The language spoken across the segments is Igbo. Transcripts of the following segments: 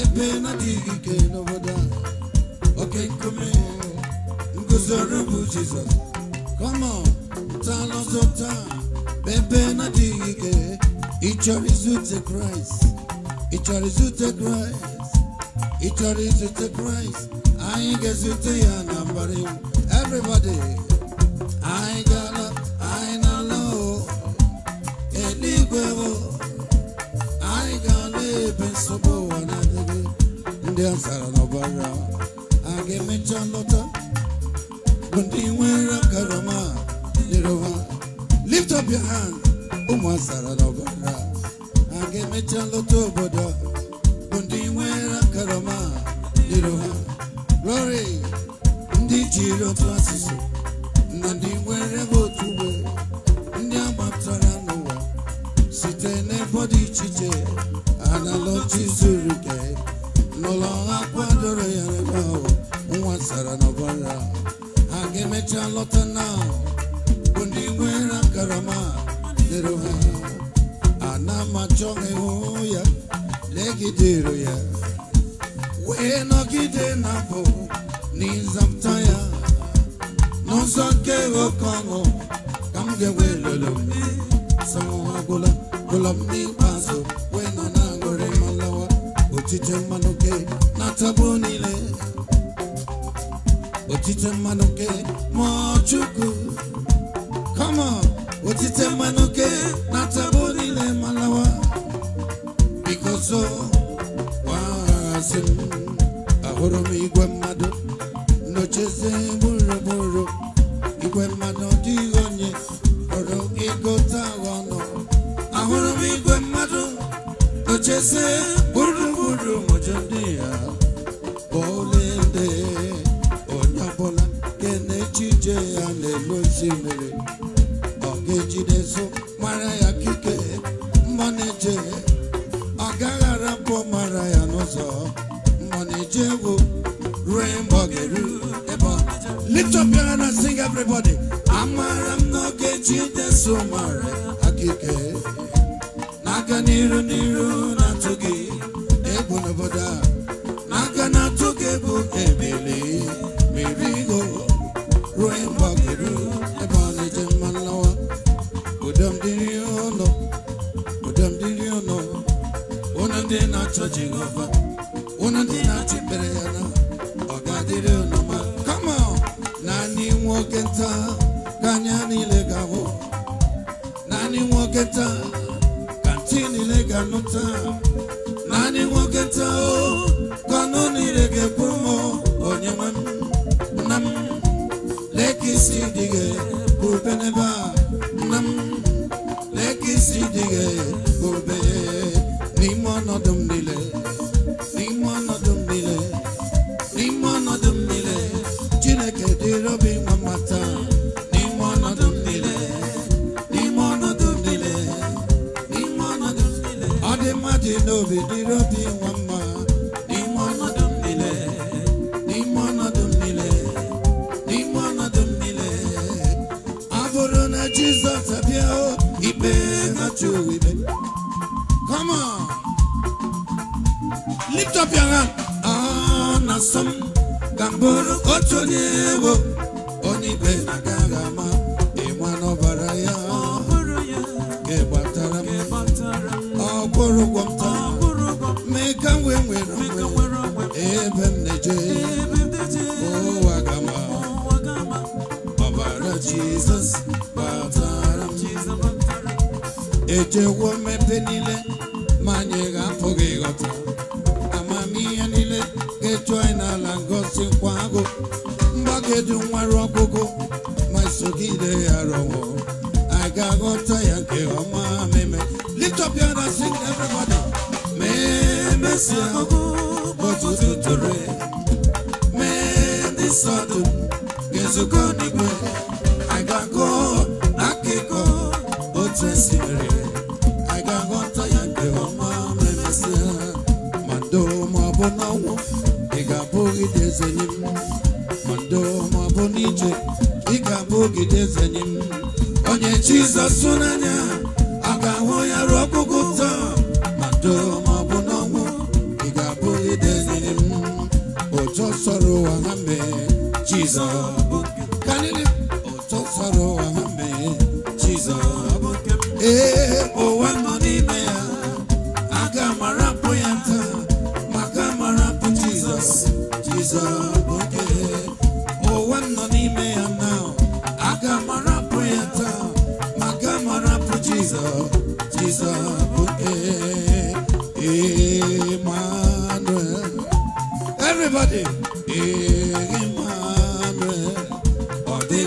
ebe na-adịghị ike n'obodo a oke nkume nguzoro bụ jizọs kọmọ ntọala taa ebe na-adịghị ike ịchọrọ izute kraịst ịchọrọ izute kraịst ịchọrọ izute kraịst anyị ga-ezute ya na mbara iwu everybody anyị ga ndị azara n'ọbara a ga-emecha lọta bụ ndị nwere karama nyere lift up your hand ụmụ azara n'ọbara a ga-emecha lọta obodo bụ ndị nwere karama nyere ha lori ndị jiri otu asụsụ na ndị nwere otu ndị agbatara n'ụwa site n'ebe dị iche iche analogy zuru kee n'ụlọ akwadoro kwadoro ya ebe ahụ nwa sara n'ọbara ha ga-emecha lọta na bụ ndị nwere karama dịrị ha ana m achọ ịhụ ya legidere ya wee nọgide na bụ n'ịzapụta ya n'ụzọ nke oke ọnụ ka m ga-enwe lolo m m n'ikpeazụ otite mmanụ ke na-ataba niile otite mmanụ ke ma chukwu come on otite mmanụ ke na dige bul bene ba nam lekk si dige bul be ni mana dum dile ni mana dum dile ni mana dum dile jine ke di robi mamata ni mana dum dile ni mana dum dile ni mana dum dile ade ma di no bi di robi lift up your hand sọm ka mbụrụ bụrụ otu onye ewo onye na agaghị ama ịnwa n'ọbara ya ịgbatara m ọ kwụrụ ụgwọ m taa mee ka m wee nwere onwe ebe m na-eje ụwa gama ọbara Jizọs batara m m mmepe niile kedu nwere ọgụgụ ma isogide ya rọwọ a ga-aghọta ya nke ọma meme lift up your hand and sing everybody memesia ọtụtụ tụrụ mee ndị sọdụ ga-ezukọ n'igwe Jesus, n'anya ọ ga-ahụ ya ruo ọkpụkpụ ụzọ ma doo ma ọ bụ n'ọnwụ ị ga-abụ idenyere m ụtọ sọrọ ụwa Jesus. mee Are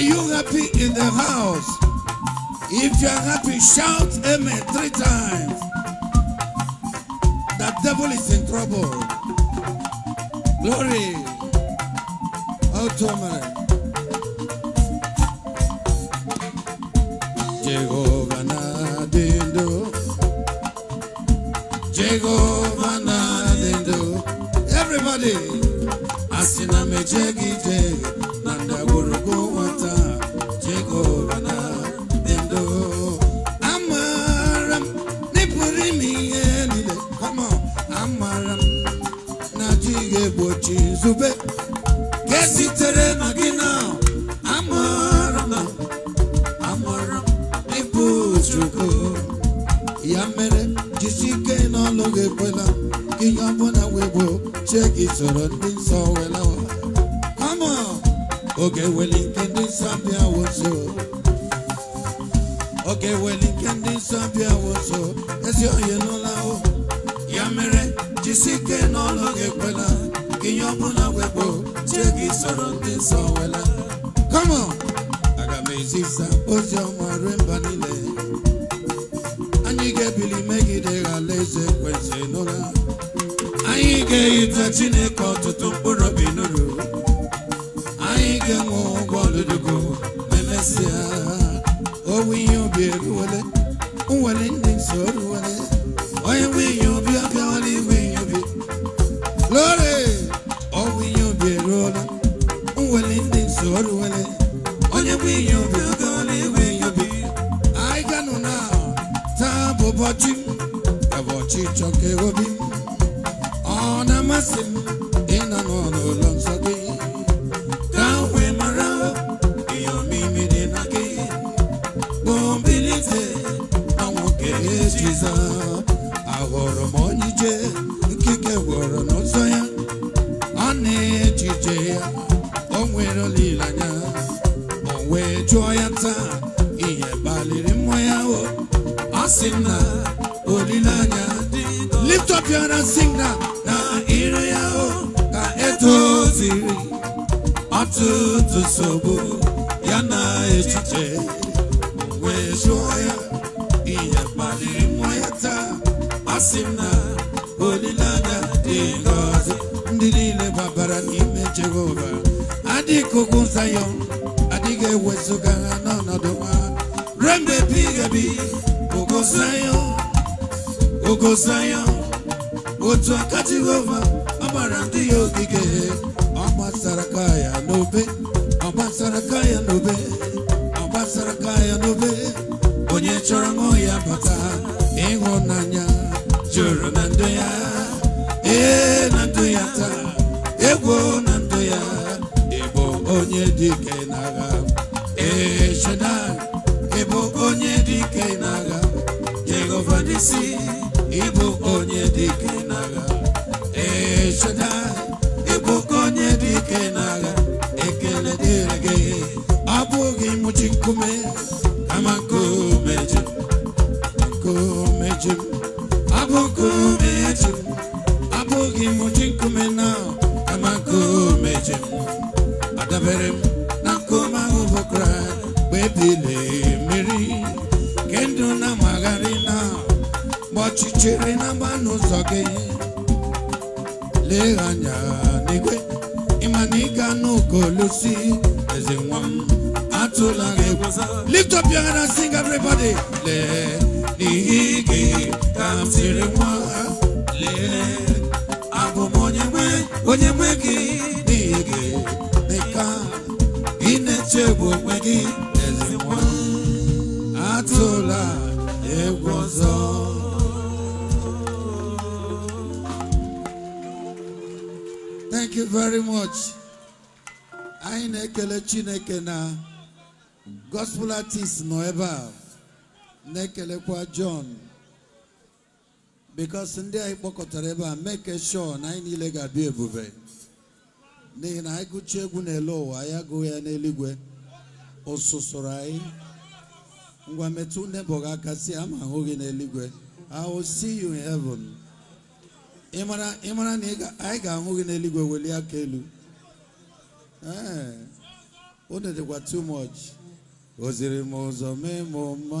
you happy in the house? If you are happy, shout amen three times. The devil is in trouble. Glory. Automare. Llegó. mere jisike n'ọlụ gị ekwela ihe ọbụla wekpo chie gị soro ndị nsọ wela aga m ezisa ozi ọma rue mba niile anyị ga-ebili megide eze ekwensị n'ụra anyị ga-eyita chineke ọtụtụ mkpụrụ obi n'uru ọrụ wele onye bụ ihe obi oge ọ na-enwe ihe obi anyị ganụ na taa bụ ụbọchị ụbọchị chọka obi ọ na-amasị olileanya lift up your hand sing na na ire ya o ka etoziri ọtụtụ nsogbu ya na echiche wee jụọ ya ihe kpaliri nwa ya taa asị m na olileanya dị ngọzi ndị niile babara n'ime jehova adịghị ugwu zayọn adịghị ewezuga ha n'ọnọdụ ha rembe bi ga ogo zayọn ogosa ya otu aka jehova ọ ndị ya ogige ọ gbasara ka ya n'obe ọ gbasara ka ya n'obe ọ gbasara ka ya n'obe onye chọrọ ṅụ ya bata ịhụnanya jụrụ na ndụ ya ee na ndụ ya taa egwu na ndụ ya ịbụ onye dị na n'agha ee Shaddai ịbụ onye dị na n'agha Jehova dịsi ịbụ onye dike n'agha ee ịbụ onye dike n'agha ekele dịrị gị ọ bụghị mụchi nkume kama nkume ji nkume ji abụghị bụ nkume ji ọ bụghị mụchi nkume na kama nkume ji adabere m na nkume ahụ bụ Kraịst mgbe chiri na mba n'ụzọ gị lee anya n'igwe ịma na olusi eze nwa m atụla lift up your hand and sing everybody lee ka m siri nwa lee abụ m onye nwe onye nwe gị gị dịka ị na onwe gị eze nwa atụla egwu ọzọ thank you very much anyị na-ekele chineke na gospel artist nọ ebe a na-ekelekwa John because ndị anyị kpọkọtara ebe a make sure na anyị niile ga-abịa ebube n'ihi na anyị gụchaa egwu n'elu ụwa ya gụọ ya n'eluigwe ụsụsụrụ anyị ngwa metụ gị aka si ama ahụghị gị n'eluigwe I will see you in heaven. ịmara mara na anyị ga-ahụ gị n'eluigwe welie aka elu ee unu dịkwa too much oziri m ụzọ mee m mma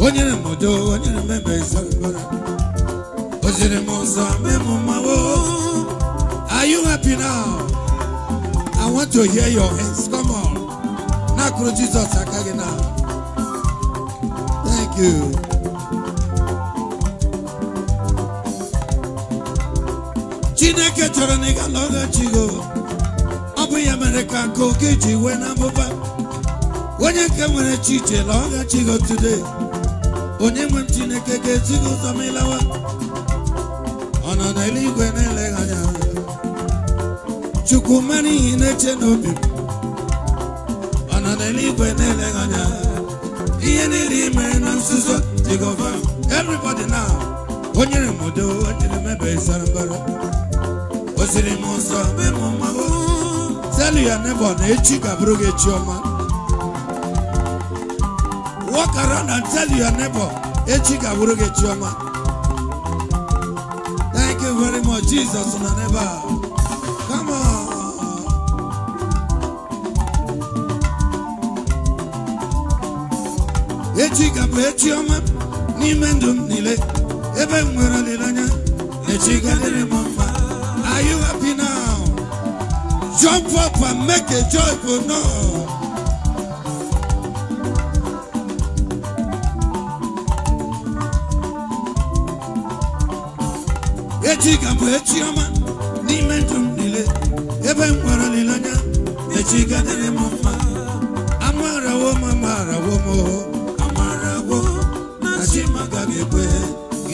onyere m udo onyere m ebe ịzọgbara o ziri m ụzọ mee mmawo are you happy now I want to hear your hands come on n'akụrụ Jizọs aka gị na thank you chineke chọrọ na ị ga alọghachigo ọ bụ ya mere ka nke oke ji wee na mmụba onye nke nwere chi iche lọghachigo today onye nwe m chineke ga-esi gị ụzọ ma ịlawa ọ nọ n'eluigwe na-eleghị anya chukwu mara ihe na-eche n'obi m ọ nọ n'eluigwe na-eleghị anya ihe niile imere na nzuzo jehova everybody now o nyere m udo o nyere m ebe sara mbara o m nsọ mee m mmanwụ telu ya nebo na echi ga-abụrụ gị echi ọma Walk around and tell your neighbor, echi ga-abụrụ gị chioma. Thank you very much, Jesus na neighbor. Come on. echi ga-abụ echi oma n'ime ndụ nile ebe m nwere olileanya echi ga-adịrị m are you happy now jump up and make a joyful noise echi ga-abụ echi ọma n'ime ndụ m niile ebe m nwere olileanya echi ga-adịrị m mma amarawo m amarawo m oh. amarawo na chi m agaghị ekwe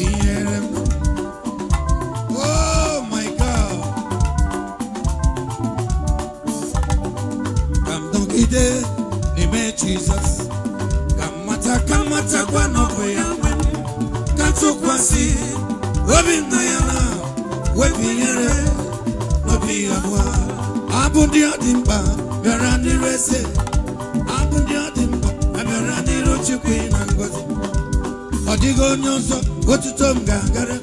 ihere m ide n'ime jizọs ka mmata ka mmatakwa n'ọbụ ya ka tụkwasị obi na binyere n'obi abụọ abụ ndị ọ dị mkpa bịara ndị eze abụ ndị ọ dị mkpa abịara n'iru chukwu na ngozi ọ dịghị onye ọzọ otuto m ga-agara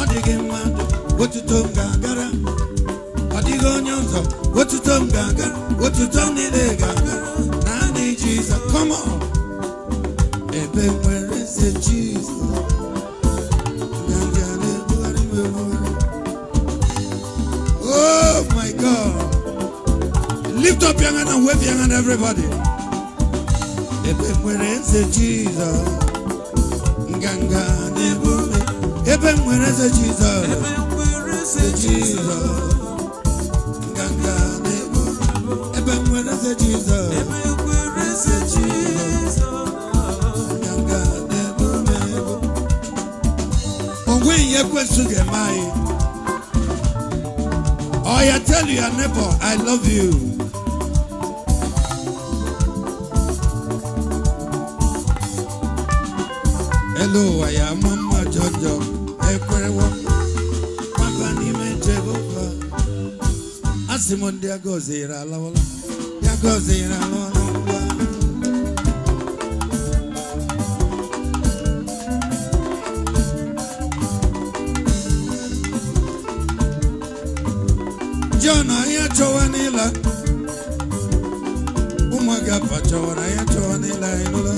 ọ dịghị mmadụ otuto m ga-agara ọ dịghị onye ọzọ otuto m ga-agara otuto niile ga-agara naanị ebe nwere God. Lift up your hand and wave your hand, everybody. Ebe nwere eze Jesus. Nganga n'ebume. Ebe nwere eze Jesus. Ebe nwere eze Jesus. Nganga n'ebume. Ebe nwere eze Jesus. Ebe nwere eze Jesus. Nganga n'ebume. Onwe ihe go to the anyị. I tell your neighbor, I love you. Hello, I am Mama Jojo. Ekwerewo. n'ime Asị m ndị John anyị chọwa n'ịla ụmụaka afa chọwara anyị chọwa n'ịla anyị nụla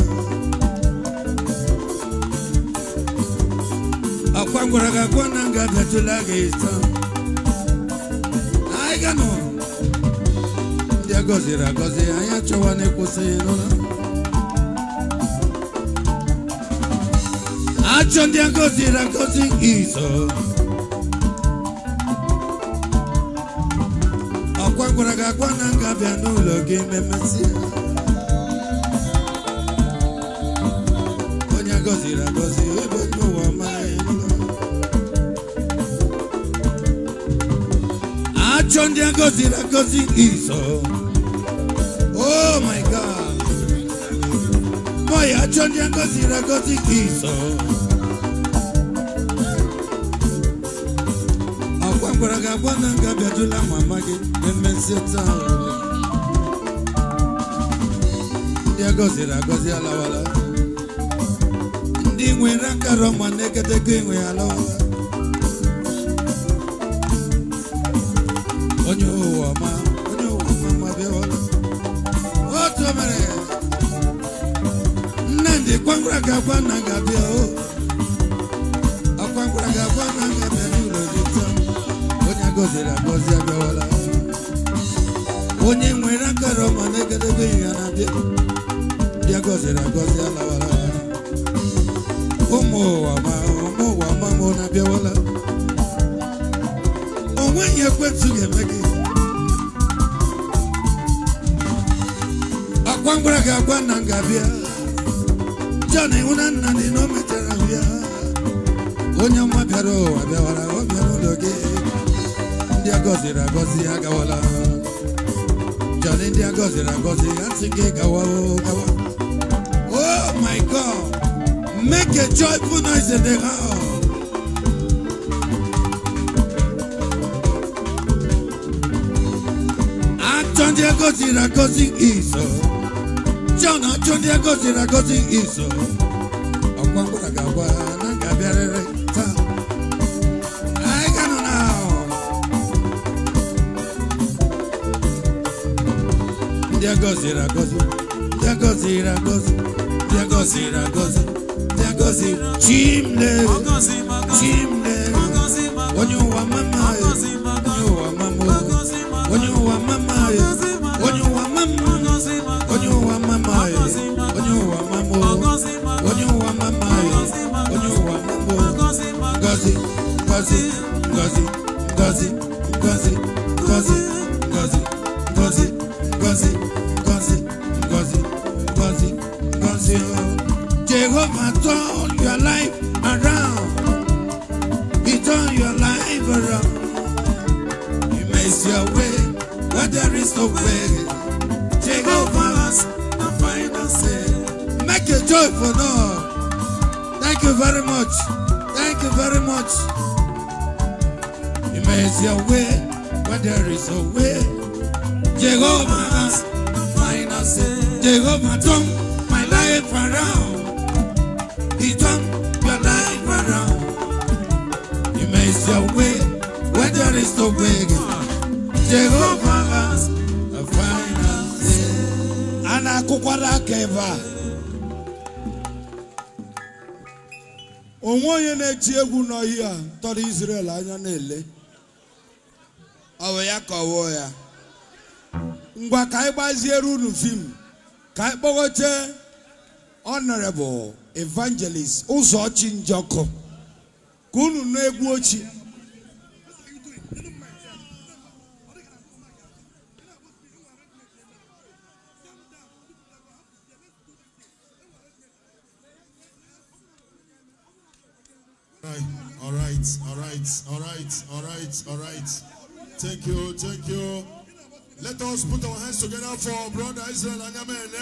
akwa gwara gị akwa na nga gajula gị taa anyị ga ndị a gọziri agọzi anyị achọwa n'ịkwụsị nụla achọ ndị a gọziri agọzi izo gwara gị agwa na nga bịa n'ụlọ gị ememesị onye agọziri agọzi ebe n'ụwa ụwa amaghị achọ ndị agọziri agọzi iso oh my god mọya achọ ndị agọziri agọzi iso gwara ga agwa na nga bịajula mama gị emezi taa ndị agọziri agọzi alawala ndị nwere akara ma na-egedego enwe alawala onye ụwa ọma onye ụwa ọma ma bịawala otu mere Nnamdi kwangwara ga agwa na nga bịa o oh. gọziri agọzi abịawala onye nwere akara ọma na-egedebe ya na-abịa bịa gọziri agọzi alawala ụmụ ụwa ma ụmụ ụwa ma mụ na-abịawala onweghị ekwentị ga-eme gị akwa mgbara ga-agwa nna m ga-abịa John ịhụna nna na o mechara onye ọma bịara ụwa bịawara ọ bịa ụlọ gị ndị agọziri agọzi agawala John ndị agọziri agọzi asị gị gawa gawa Oh my God make a joyful noise in the house ah, John ndị agọziri agọzi iso John ah, John ndị agọziri agọzi iso ọgwa mgbara na ga ndị agọziri agọzi ndị agọziri agọzi ndị agọziri Thank you, joyful Lord. Thank you very much. Thank you very much. He makes your way where there is a way. Jehovah has mine us. Jehovah turned my life around. He turned your life around. He makes your way where there is no way. Jehovah has a final say. Ana kukwara keva. onwe onye na-eti egwu a tọrọ israel anya na-ele ọ bụ ya kọwuo ya ngwa ka anyị gbaziere unu fim ka anyị kpọgote honorable evangelist ụzọ ụzọchi njọkụ ka unu na egwu ochie right, all right, all right, all right, all right. Thank you, thank you. Let us put our hands together for Brother Israel Anyamene.